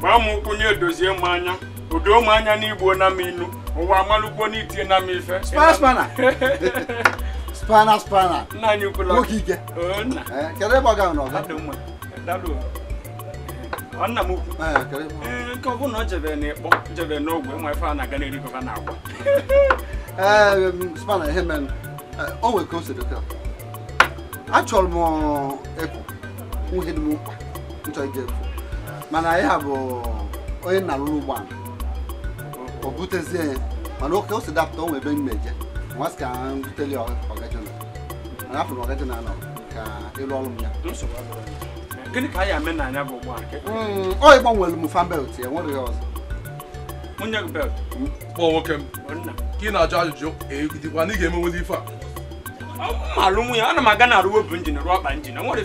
gbaa m nkwụ nye dozie m anya odo m anya na m inu ụwa amalụgbo n'itie na m ife spana spana nna anyị kwula nwoke ike eh, kedu ebe ọ gara n'ọga nna m ukwu eh, eh, nke ọ bụla ọ jebere n'ịkpọ jebere n'ogwe nwa ife a na-aga n'erigova na agwa spana ihe mere o nwere ka o m nwuhe dị m ije mana ya bụ onye nna rụrụ ala o butezie ya mana oke o si dapụta o ebe mmeje nwa sị ka buteli afọ na ọgaji na-anọ ka ịlụ ọrụ m ya gịnị ka anyị ame na bụ ụgbọ hmm, m fan belt ya nwere ya ọzọ nwunye belt hmm. kpọọ nwoke m ka ị na-ajụ ajụjụ na ị ga-emenwezi ife a marụ nwunye ana m na njin rụọ njin nwere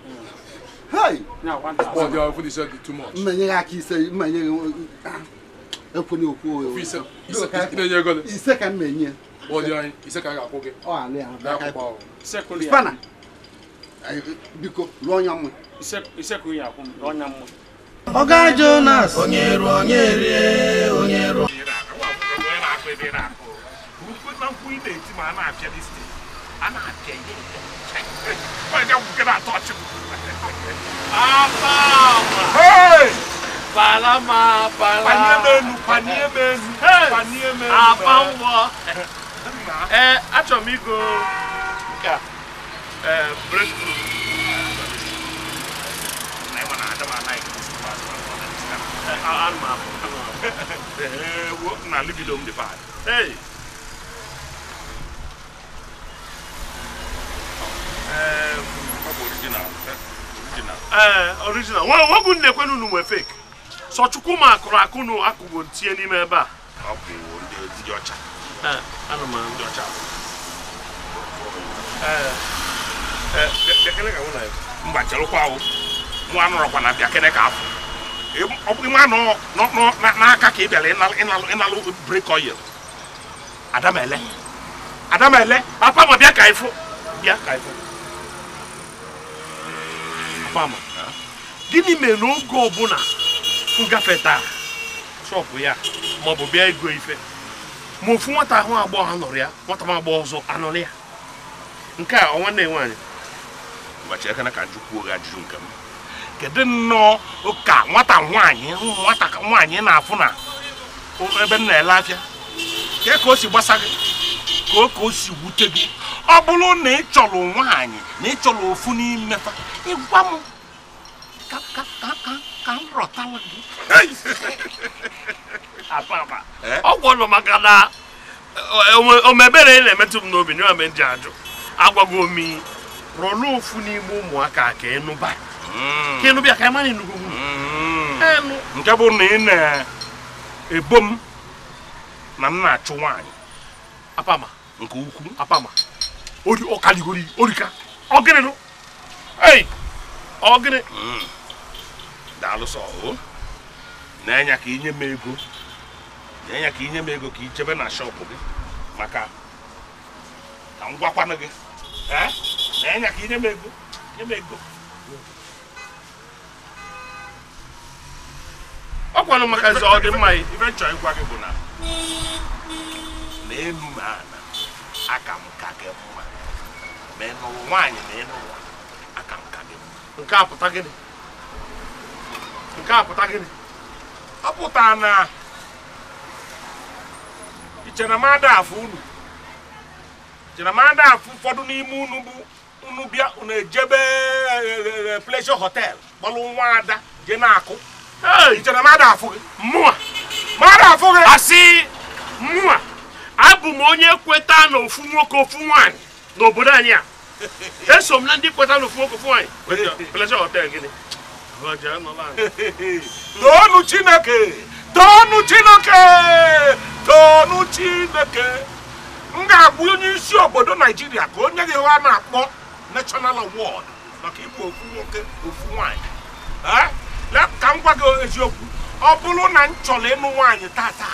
Hey! Now, one thousand. Oh, you already said it too much. Manyaki say, Manyaki. Ẹ̀pọ̀ni òkú o. Ìṣe kan mẹ̀yìn. Ọ̀dì ọ̀yìn, ìṣe kan kàkó gẹ̀. Ọ̀ àlẹ́ àwọn bá kàkó. Ìṣẹ́kùnrin yà. Spanner. Biko, lọ́nyà mú. Ìṣẹ́kùnrin yà kún, lọ́nyà mú. Ọ̀gá Jonas. Onye ru, onye rie, onye ru. Ukwu ị na-eti ma a na-apịa dis thing, a na-apịa ihe. Ọ na-apịa atọ ọchịbụ. A palma. Hey! Palama, palama. Panie menu, panie menu. Hey! Panie menu. A palma. Eh, m igo. Eh, breakthrough. original. ee eh, original nwegwu na-ekwenu unu nwe fake sọ chukwu ma akụrụ akụ na tinye n'ime ebe a ọ bụ ndị ọcha eh, anụ ndị ọcha eh, mba chelụkwa ahụ nwa nọrọkwa na ka afọ ọ n'aka ka papa fama gịnị mere na oge ọbụla m gafetara shọpụ ya maọbụ bịa ego ife ma ofu nwata ahụ agbọghọ anọrọ ya nwata m agbọghọ ọzọ anọrọ ya nke a ọnwa nne nwaanyị gbachi aka na ka njụkwuo gị ajụjụ nke m kedu nnọọ ka nwata nwaanyị nwata nwaanyị na-afụ na ebe m na-ele afịa ka o si gbasa gị ka o ka o si wute gị ọ bụrụ na ị chọrọ nwaanyị na ị chọrọ ofu n'ime fa ịgwa m ka m rọtala gị eh? ọ gwọrọ maka na eh, omebere na-emetụ m n'obi n'ime ndị ajụ agwago omi rọlụ ofu n'ime ụmụaka ka ịnụba hmm. ka ịnụbịa ka ịmara ịnụgo hmm. nke bụ na ị na-ebo m na m na-achụ nwaanyị apama nke ukwu apama ori ọka digori ori ka ọgịnị nụ ei ọgịnị hmm. daalụsọ o na enye ka inye m ego na enye ka inye m ego ka ichebe na shọpụ gị maka ka m gwakwanụ gị eh? na enye ka inye m ego nye m ego ọ kwanụ maka ezi ọ dị mma ife m chọrọ ịgwa gị bụ na na elu ma na aka m ka gị mma ma ị nụrụ nwaanyị ma ị nụrụ aka nka gị nke a pụta gịnị nke a pụta gịnị ọ pụta na iche na m ada afụ unu iche na m ada afụ ụfọdụ n'ime unu bụ unu bịa unu ejebe eh, eh, pleasure hotel kpọrọ nwa ada jee na-akụ iche na m ada afụ gị mmụọ m ada afụ gị asị mmụọ abụ m onye kweta na ofu nwoke ofu nwaanyị n'obodo anyị a esom na ndị kpọta n'ofu okwu fụọ anyị plesha hotel gịnị toonu chineke toonu chineke toonu chineke m ga-agwa onye isi obodo naijiria ka onye gị ha na-akpọ national award maka ịbụ ofu nwoke ofu nwanyị ka m gwa gị eziokwu ọ bụrụ na m chọrọ ịnụ nwaanyị tata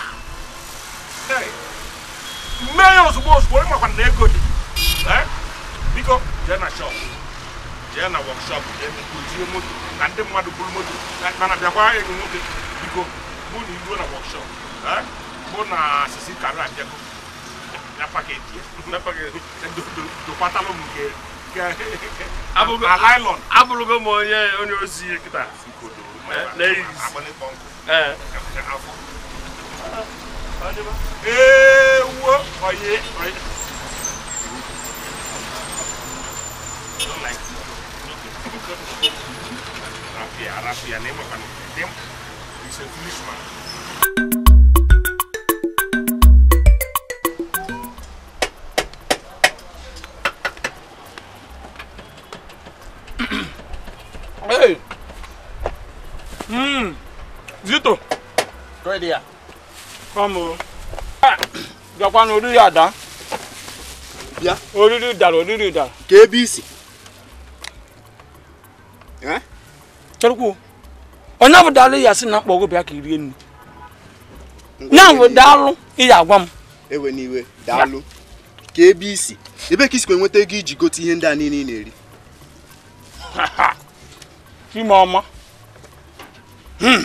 mee ya ozugbo ozugbo ịmakwana na ego dị biko jee na shop jee na workshop kuzie moto na ndị mmadụ buru moto mana bịakwa enyi nwoke biko mụ na iruo na workshop mụ na sisi karịa abịago dokwatalụ m m onye onye ozi kịta ee wuo onye Raffia, Raffia, nem makan. Dem, it's a foolish Hey! hmm, Zito! kau dia, kamu, on. Ah! Japan, orí àdá. ya, Orí ìdàrọ̀, orí ìdàrọ̀. Kébìsì. chọrọkwuo onye bụ daalụ ya sị na mkpọ ọgụ bịa ka i rie nri ya bụ daalụ ị agwa m ewe n'iwe daalụ ka ebe isi ebe ka isikwa enweta ego iji gote ihe ndị a niile ị na-eri ime ọma hmm.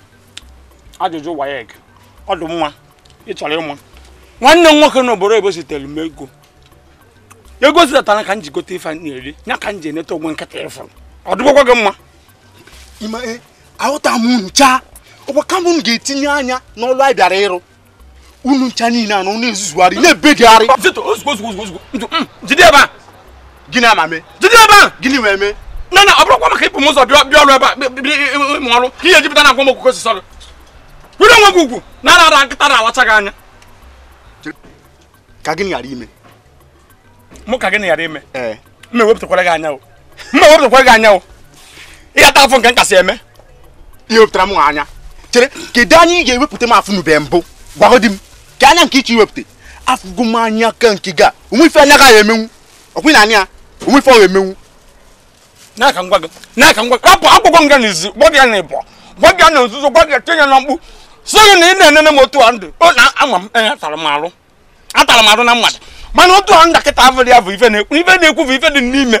ajụjụ waya ege ọdụ mma ị chọrọ ịma nwanne m nwoke n'obodo ebe zitere m ego ego zitatara ka m ji gote ife na-eri ya ka m ji eneta ogwe nkịta ịfụrụ ọ dịbụkwa gị mma Eh, ahụta m ncha ọgbaka m ga-etinye anya n'ọlụ anyị bịara ịrụ unu ncha niile a na ọnụ ezuzugharị na gịnị gịnị wee mee na na ọ bụrụkwa maka ịpụ m ụzọ bịa ọrụ ebe a ịmụ ọrụ ka ihe jupụta na agwa m were onwe gị ugwu na ara ara nkịta na-awacha gị anya ka gịnị ghara ime mụ ka gịnị ghara ime eh. mma ewepụtakwara gị anya mma ewepụtakwara gị anya ihe ata afọ nke m eme ihe wepụtara m anya chere kedu anyị ga-ewepụta m afụ bee mbụ gwagọ di m ka anya nke iche iwepụta afụgo m anya ka nke ga onwe ife anya ya emenwu ọkwụ na anya onwe ife ọ ga-emenwu akwụkwọ nga na ịbọ na nzuzo tinye na so na na-enene otu a ndụ ọ na ama m atara m arụ atara m arụ na mmadụ mana otu a ekwu ife dị n'ime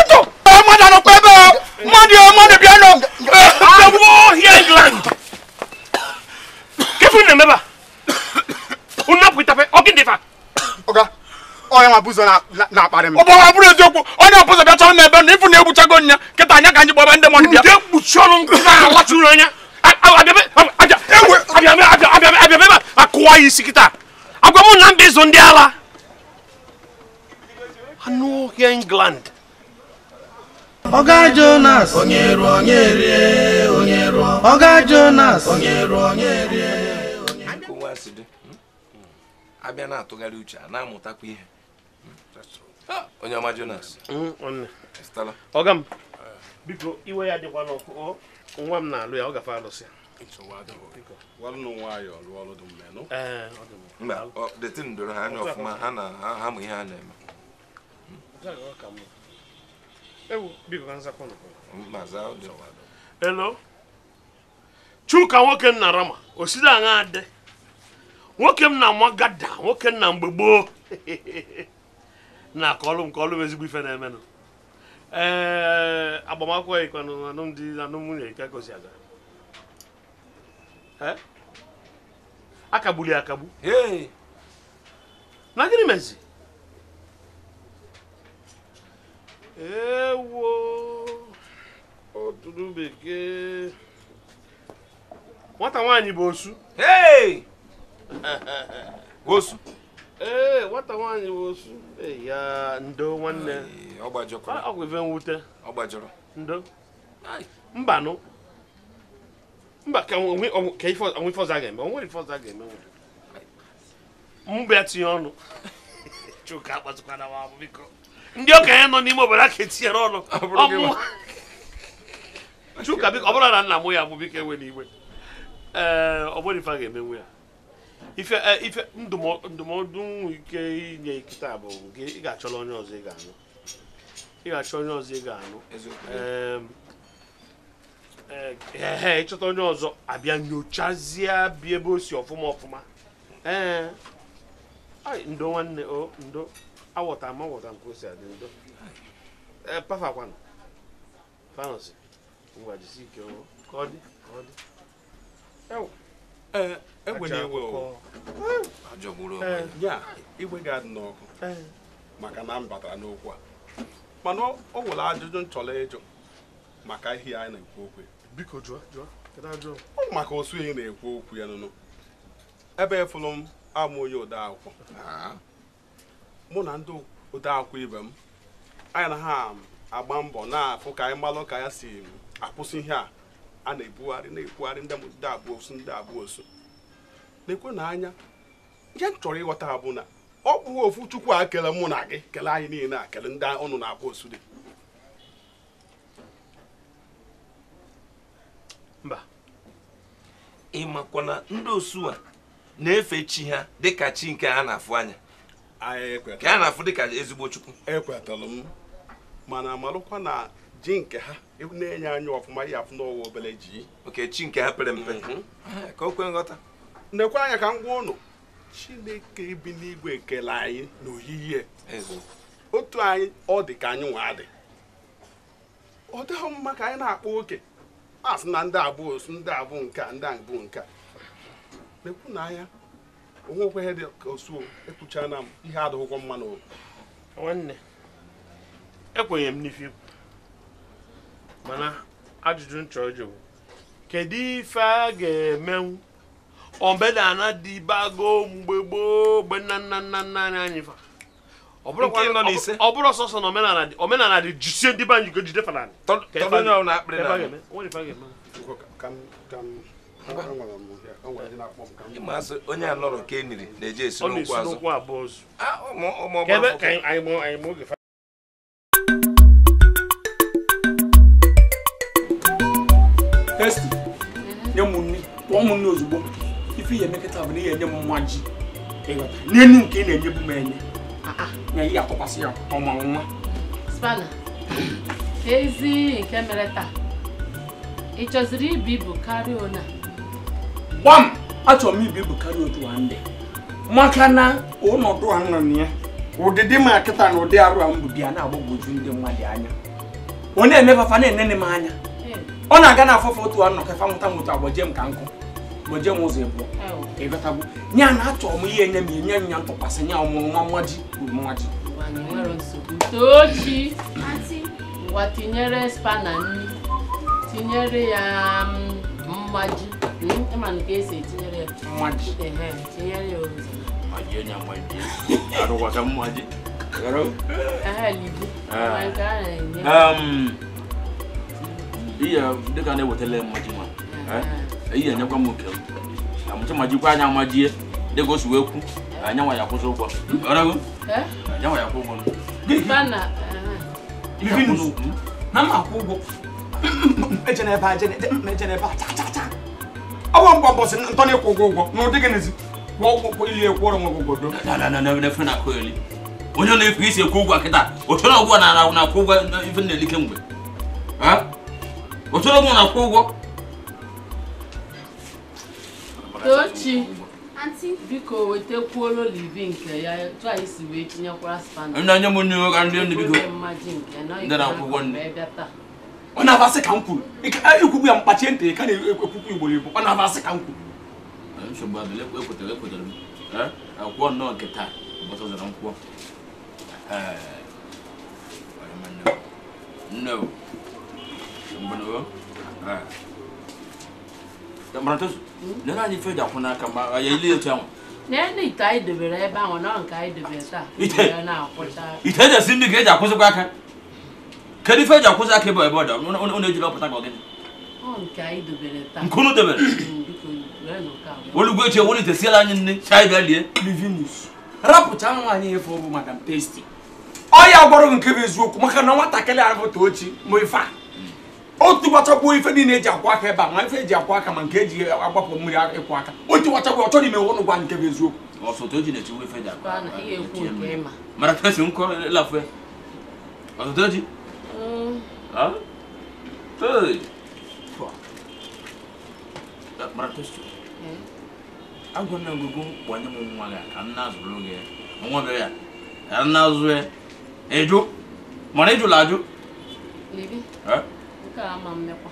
nwa bụ ụzọ na-akparị m ọ bụrụ eziokwu onye ọbụzọ bịa chọrọ m ebe na na egbuchago nya kịta anya ka anyị gbaba ndị mmadụ bịa ọnụ na-alachụrụ anya abịa ebe a isi kịta agwa m na mba ịzụ ndị ala anụ ọhịa england ọga Jonas onye rụọ onye rie Jonas onye onye onye ọma Jonas mm, ọga m eh. biko iwe ya dịkwa n'ọkụ nwa m na-alụ ya ọ gafe alụsị eh, doro ha anya ọfụma elo chuka nwoke nna rama osiri aṅa dị nwoke m na-ama gada nwoke nna mgbe gboo na akọlụ nke ọlụ ezigbo ife na-emenụ ee agbamakwụkwọ yikwanụ alụmdi na nwunye ka gosi aga akagbuli akagbu na gịnị mezi ewo oturu bekee nwata nwaanyị bụ osu osu ee nwata nwaanyị bụ osu ya ndo nwanne ọgwụ ife mwute ndo mbanụ mba ka ife ọzọ a ga-eme onwere ife ọzọ a ga-eme nwere mbịa tinye ọnụ chuka akpatụkwana m abụ ndị okenye nọ n'ime obodo aka etinyere ọnụ chuka biko ọ bụrụ na nna m ya bụ biko enwe n'iwe ee eh, ọ bụrụ ife a ga-emenwu ya ife eh, ife ndụmọdụ ike inye kịta bụ nke ị ga-achọrọ onye ọzọ ị ga-anụ ị ga-achọ onye ọzọ ị ga-anụ ee eh, eh, ịchọta onye ọzọ abịa nyochazie bịa ebe o si ọfụma ọfụma ee ndo nwanne o ndo awọta ma awọta nke o si adị ndo ee pafakwanụ fanọsi ngwa jisi ike ka ọ dị ka ọ dị ewu Eh, eh, igwe eh. ga-adị n'ọkụ maka na m batara n'okwu a mana ọ nwere ajụjụ m chọrọ ịjụ maka ihe anyị na-ekwu okwu biko Ọ maka osu na-ekwu okwu ya nụnụ ebe efụrụ m amụ onye odeakwụkwọ ah. mụ na ndị odeakwụkwọ ibe m anyị na ha agba mbọ na-afụ ka anyị malụ ka ya si akwụsị ihe a a na-ebugharị na-ebugharị ndị ndị abụọ osu ndị abụọ osu na-ekwe na anya ihe m chọrọ ịghọta ha na ọ bụ ofu chukwu a kele mụ na gị kelee anyị niile a kele ndị ọnụ na-abụ osu dị mba ịmakwa na ndị osu a na-efe chi ha dịka chi nke ha na-afụ anya ka e ha na-afụ dịka ezigbo chukwu ekwetalụ m mana marụkwa na ji nke ha e na-enye anyị ọfụma ya afụ n'ụwa obere ji oke chi nke ha pere mpe mhm. ah, ka o kwe nghọta nekwe anya ka m gwa ụnụ chineke bi n'igwe ekele anyị n'oyiyi otu anyị ọ dị ka anyị nwa adị ọ dịghị mma ka anyị na-akpa oke a na ndị abụọ osu ndị abụ nke ndị abụ nke a mekwu na anya onwe okweghị dị ka osuo ekwuchana m ihe adịghịkwa mma n'oge nwanne ekwenye m n'ife ikwu mana ajụjụ nchọ chọrọ ịjụ kedu ife a ga-emenwu obedana dịbago mgbe gboo mgbe nna nna nna nna anyị anyị fa ọ bụrụ sọsọ na omenala dị jisie ndị be anyị go jide fanani ịmasị onye a nọrọ ka e na-eje esi n'ụkwụ azụ nne ozugbo ife ihe emekọta bụ na ihe enye m nwa ji n'elu nke ị na-enye bụ m enye ah, ah. na ị ga-atụkwasị ya ọma nwa ezi nke mere taa ị chọziri ibu bụ karịa ona gbam achọrọ m ibu bụ karịa otu a ndị maka na ọnọdụ a nọ ya ụdịdị ma kịta na ụdị arụ a m bụ bịa na-agbagwoju ndị mmadụ anya onye emefafa na-enene m anya ọ na-aga na afọfa otu a nọ ka fa nwụta agbajie m ka nkụ wɔgya mu sɛ ɛboɔ ɛbɛta bo nyɛ ana atɔ ɔmo yie nya mie nya nya ntɔkwasɛ nya ɔmo ɔmo ɔmo agye ɔmo agye. tochi watinyere spana nni tinyere ya mmaji ịma nke esi etinyere ya mmaji tinyere ya ozi. mmaji onye mmaji arụkwasa mmaji. Iya, dịka na-ewetala mmaji ma. eyi enyekwa m oke na mụcha ma jikwa anya wee kwu na anyanwa ya kwụsị ụgwọ anyanwa ya kwụ ụgwọ na m akwụ ụgwọ a ọ bụ mgbe ụbọchị ntọ na-ekwu ụgwọ ụgwọ na ụdị gịnịzi kwụọ ụgwọ ili ekwu ọrụ onye na-efu isi ekwu ụgwọ kịta na akwụ ụgwọ ife na-elike mgbe o chọrọ na akwụ ụgwọ Tochi biko wetakwuola olivi nke ya etu anyị si wee tinyekwara spandị onye m nyewe ka ndị ndị biko ndị na akwụkwọ nne ọ na-abasị ka m kwuru ikwugbu ya mkpachie ntị ka na-ekwukwu igbo ọ na-abasị ka m kwuru nsogbu adịla m akwụkwọ nnọọ nke taa ụbọchị mbụ mmaratozu na anyị ife dị na ma ya ile etu ahụ e e na ite anyị ebe ahụ taa esi ndị ka eji akwụzịkwa aka kedu ife eji akwụzị aka ebe ebe ọdọ dị ejiri ọpụta ka ọ nke unu dobere olugbo echi ewere siela anyị nne si e bịa lie livinus nwaanyị efe ọ bụ madam testi ọ ya gwara nke bụ eziokwu maka na nwatakịrị ahụ ife a otu gbachakwu ife niile eji akwa aka ebe a ma ife eji akwa aka ma nke eji agbapụ mmiri ịkwụ aka otu gbachakwu ọ chọrọ ime ụnụ gwa nke bụ eziokwu agwana ngwego kpọnye m nwa gị ka nna azụrụ oge nwa bịa ya ka nna azụ ya ịjụ mana ịjụla ajụ ama mmekwa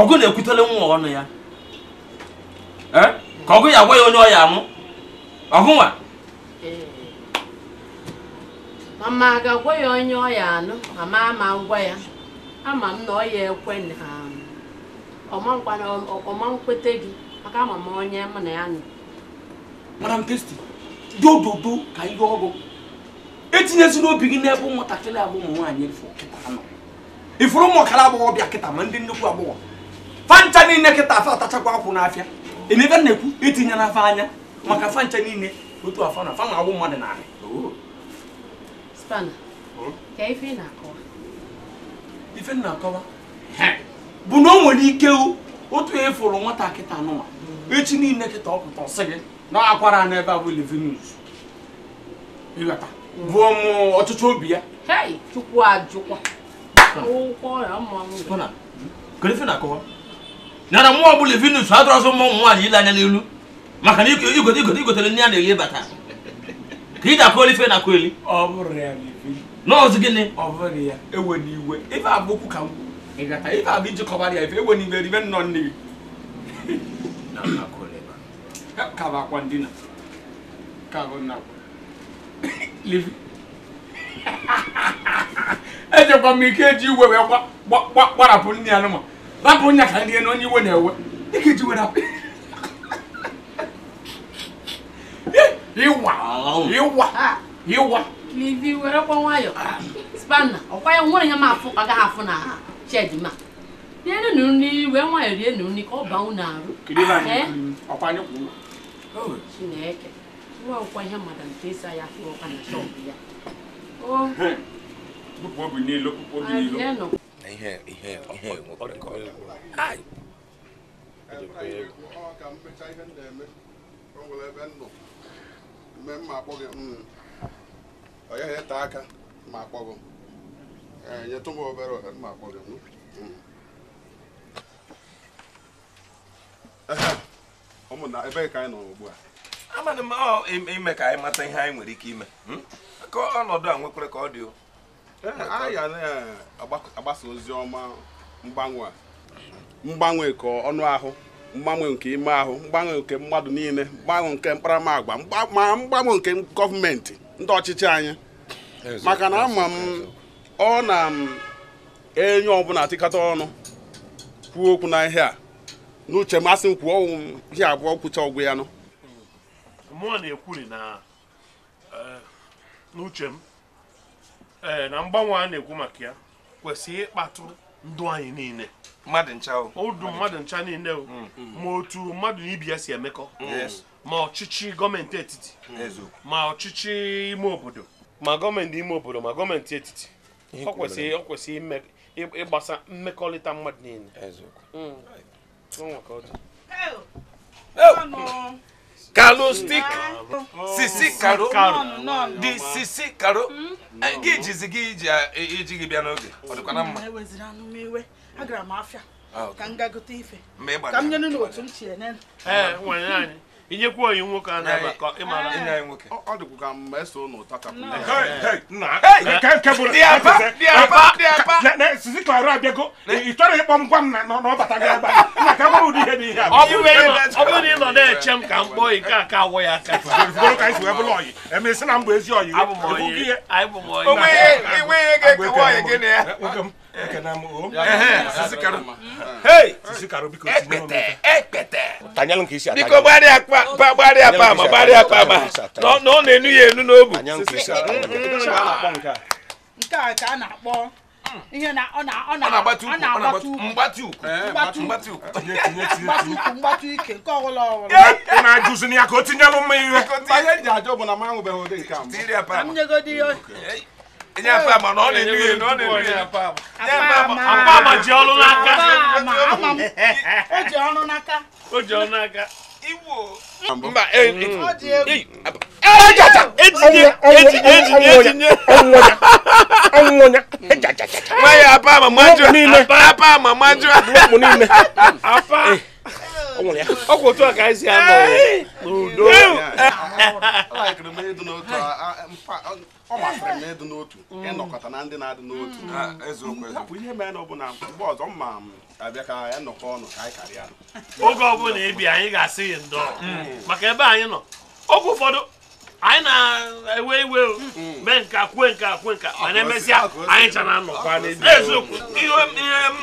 ọgụ na-ekwutele nwa ọnụ ya eh? ka ọgụ ya eh. agwa ya onye ọya amụ ọgụ nwa mama ga-agwa ya onye ọya anụ mama ma ngwa ya ama m na ọ ya ekwe um, ọma nkwete gị maka ama m onye m na ya nọ madam testi dị ododo ka ihe ọgụ etinyezi n'obi gị n'ebe ụmụntakịrị abụ ụmụ nwaanyị ifuru ụmụ ọkara agbọghọbịa kịta ma ndị nnukwu agbọghọ fancha niile kịta afa atachakwa akwụ n'afịa na-ekwu itinye e anya maka fancha niile otu na afa na-agbụ mmadụ ife nna bụ na o nwere ike otu e fụrụ nwata kịta anụma echi niile kịta ọpụta ọsị gị na akwara n'ebe a bụ livin ịghọta bụ ọchịchọ obi ya chukwu ajụkwa nyara mmụọ ọ bụla ụmụ nwaanyị ile anya n'elu maka na igote igotere nne ya na-eli bata ka ị ga-akụ olife na akụ eli nọọsụ gịnị ọ bụghị ya ewe n'iwe ife bụ okwu ka ịgata ife bụ iji kọbara ya ife ewe n'iwe ribe nnọọ nne gị ka bụ akwa ndina ka bụ nna livi ejekwa m ike eji iwe wee gbarapụ nne ya nụma rapụ nya ka ndị na onye iwe na-ewe dịka eji were ịwa ịwa ịwa livi were kwa nwayọ spanna ọkwa ya nwere eh? oh, ya ma afụ afụ na shed ma rienu nri wee nwayọ rienu nri ka ọ baa na arụ chineke nwa ọkwa ihe mmadụ nke ịsa ya afụ ọkwa na shọpụ ya ihe ihe ihe nwekwara ka ọ ya ete aka ma akpọ akpọgo nyetụ m e, obere ohere ma akpọ akpọgo hmm. ụmụnna ebe ka anyị nọ ugbu a amadị m ime ka anyị mata ihe anyị nwere ike ime hmm? ka ọnọdụ a nwekwere ka ọ dị e, anyị ga na-agbasa ozi ọma mgbanwe mgbanwe nke ọnụ ahụ mgbanwe nke ime ahụ mgbanwe nke mmadụ niile mgbanwe nke mkparamagwa ma mgbanwe nke gọọmenti ndị ọchịchị anyị maka na ama m ọ na-enye ọbụla atịkata ọnụ kwuo okwu na ihe a n'uche masị m kwuo ọnwụ ihe abụọ kwụcha ọgwụ ya nọ mụọ na na e, n'uche m ee na mgbanwe a na-ekwu maka ya kwesịrị ịkpatụ ndụ anyị niile mmadụ ncha niile mm. ma otu mmadụ na ibi ya si emekọ ma ọchịchị gọọmenti etiti ma ọchịchị ime obodo ma gọọmenti ime obodo ma gọọmenti etiti ọ kwesịrị ọ kwesịrị ịgbasa mmekọrịta mmadụ niile karo stik sisi karo di sisi karo hmm? gị jizi gị iji gị bịa n'oge ọ dịkwana mma hmm, agara m afịa ah, ka m gagote ife ka m nye n'otu m chie kwuo onyi nwoke a na-aba ka ị mara ọ dịkwu ka mma eso ụnụ ụtọ ka ịkpọ m gwa m na ọbata gị agba na ka ihe bụ ihe ọ bụ na ị nọ na-eche m ka m kpọọ ka ka awọ ya aka bụrụ ka anyị wee bụrụ ọyị emesi na bụ biko gbarịa akpa ma gbarịa ma na ọ na-enu ya enu n'obu nke a ka a na-akpọ ihe na ọ na-agbatu ukwu mgbatu ukwu mgbatu ukwu mgbatu ike nke ọbụla ọbụla ị na-ajụzi ya ka o tinyelụ mma ihe ihe ji ajọ nye apama na ọ na-enu ya enu ọ na-enu ya apama apama ji ọrụ n'aka o ji ọrụ n'aka o ji ọrụ n'aka iwo mba ejata etinye etinye etinye etinye ọnwụnya nwa ya Apa? Apa? n'ime apama maju Apa? n'ime apa ọ kwụ otu a ka anyị si anọ n'udo ọ masịrị m na ịdụ n'otu mm. ịnọkọta na ndị na-adị n'otu bụ mm. ihe mere na ọ bụla mgbe ọzọ mma m abịa ka ya nọkọ ọnụ ka anyị karịa oge ọbụla ebi anyị ga-asị gị ndọ mm. maka ebe anyị nọ oge ụfọdụ anyị na-ewe iwe hmm. mee nka kwe nka kwe nka mana emesịa anyị chara anọkwa n'eziokwu ihe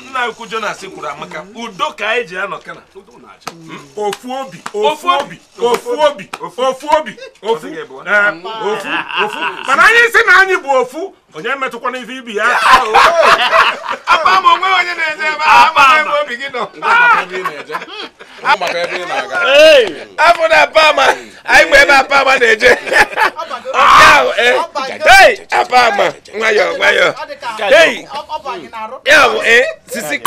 nna ukwu Jonas kwuru amaka hmm. udo ka anyị ji anọkana hmm? ofu obi ofu obi ofu obi ofu obi ofu ofu mana anyị si na anyị bụ ofu onye metụkwana ife ibi ya apa m onwe onye na-eje ebe ebe obi gị nọ afọ na-aba anyị mgbe ebe apa ama na-eje apa ama nwayọọ nwayọọ ya bụ sisi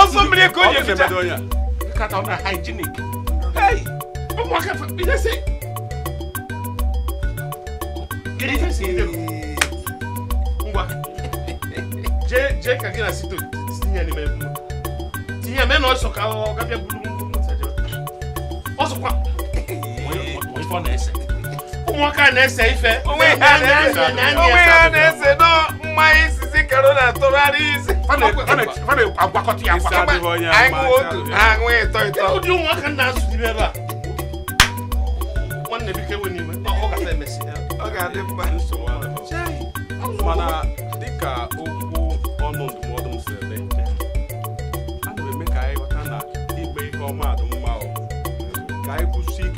ọsọ mmiri ka o ji efecha nkata ọ na hygienic ụmụaka fafidesi kedu ife si ere m ngwa je je kage na sito sinya ni mebu sinya me na oso ka o ka bia O oso kwa o fo na ese o ka na ese ife o we ha na ese na ni ese na ese no mai sisi kero na to rari isi fane fane fane agbakoti agbakoti anwo otu anwo ito ito o di o ka na asu di beba nwanne bi kewe n'ime ọ ga-adị mma mana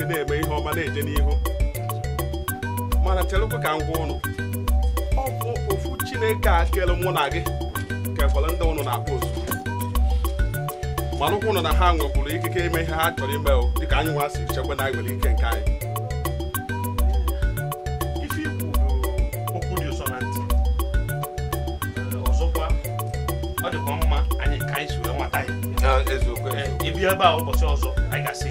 na-eme ihe ọma na-eje n'ihu mana chelekwe ka m gwa ụnụ ọ bụ ofu chineke a kere mụ na gị ka efere ndị ụnụ na-akpọ ozu mana ụkwụ ụnụ na ha nwekwuru ikike ime ihe ha chọrọ ime o dịka anyị nwa si chekwa na nwere ike nke anyị ọ dịkwa mma anyị ka anyị si wee nwata ya eziokwu ebe a ụbọchị ọzọ anyị ga-asị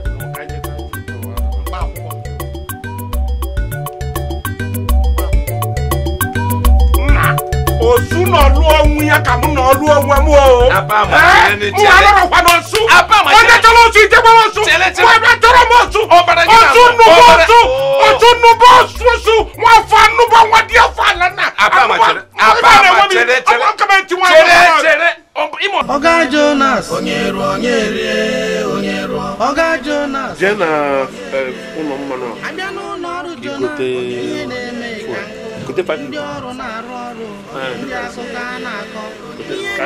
na lu ya ka mu na lu ohun mu o aba no su aba ma ni ti lo su je pa mo su wa ba toro mo su o bara ni su nu bo su o tu nu bo su su wa fa nu bo wa dia fa la na aba ma tere aba ma tere tere aba ma Jonas. Onye ruo onye rie onye ruo. Ọ̀gá Jonas. Jee na e, ụlọ mmanụ a. Abịa n'ụlọ ọrụ Jonas. ka anyị ka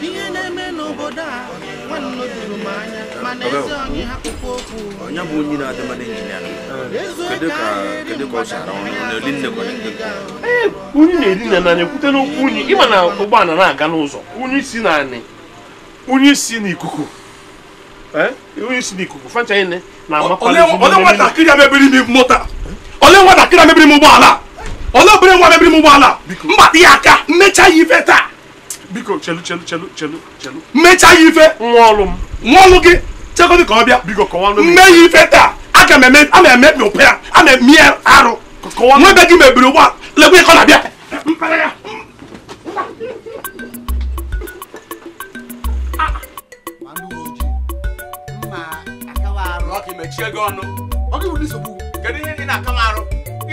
ihe na-eme a anya mana onye okwu onye bụ onye na-adị mmadụ kedu ka ọ na-eli na na nanya kwute n'ụkwụ unyi ịma na ụgbọala na-aga n'ụzọ unyi si na unyi si n'ikuku si n'ikuku na nwatakịrị a mebiri m ụgbọala olee obere nwa mebiri m ụgbọala mbata ya aka mmecha ya ife taa biko chelu chelu chelu chelu chelu mmecha ife nwaọlụ m nwaọlụ gị chekodi ka ọ bịa biko kọwanụ mme ya ife taa aka m eme ama eme mi arụ gị mebiri ụgbọala a ka ọ na-abịa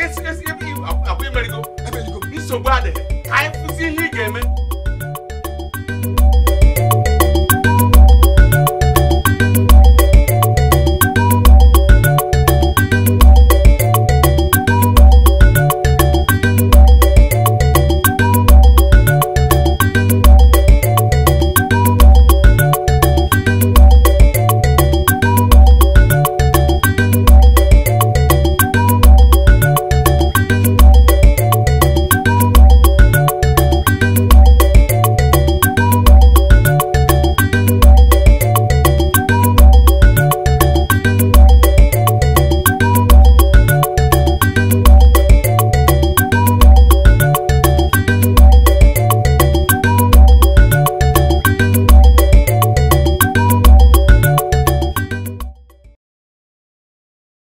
esi esi ebe iwu akwụ emerigo nsogbu adịghị ka anyị kwụsị ihe ị ga-eme